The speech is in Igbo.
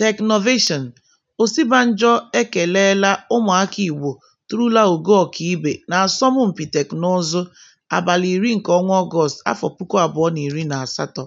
Teknụvation: Osibanjo ekeleela ụmụaka Igbo turula ogo ọkaibe n'asọmpi teknụzụ abalị iri nke ọnwa afọ puku abụọ na iri ọgọst na asatọ.